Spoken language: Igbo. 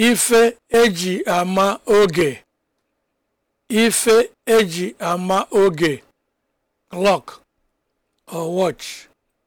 ife eji ama oge ife eji ama oge clock or watch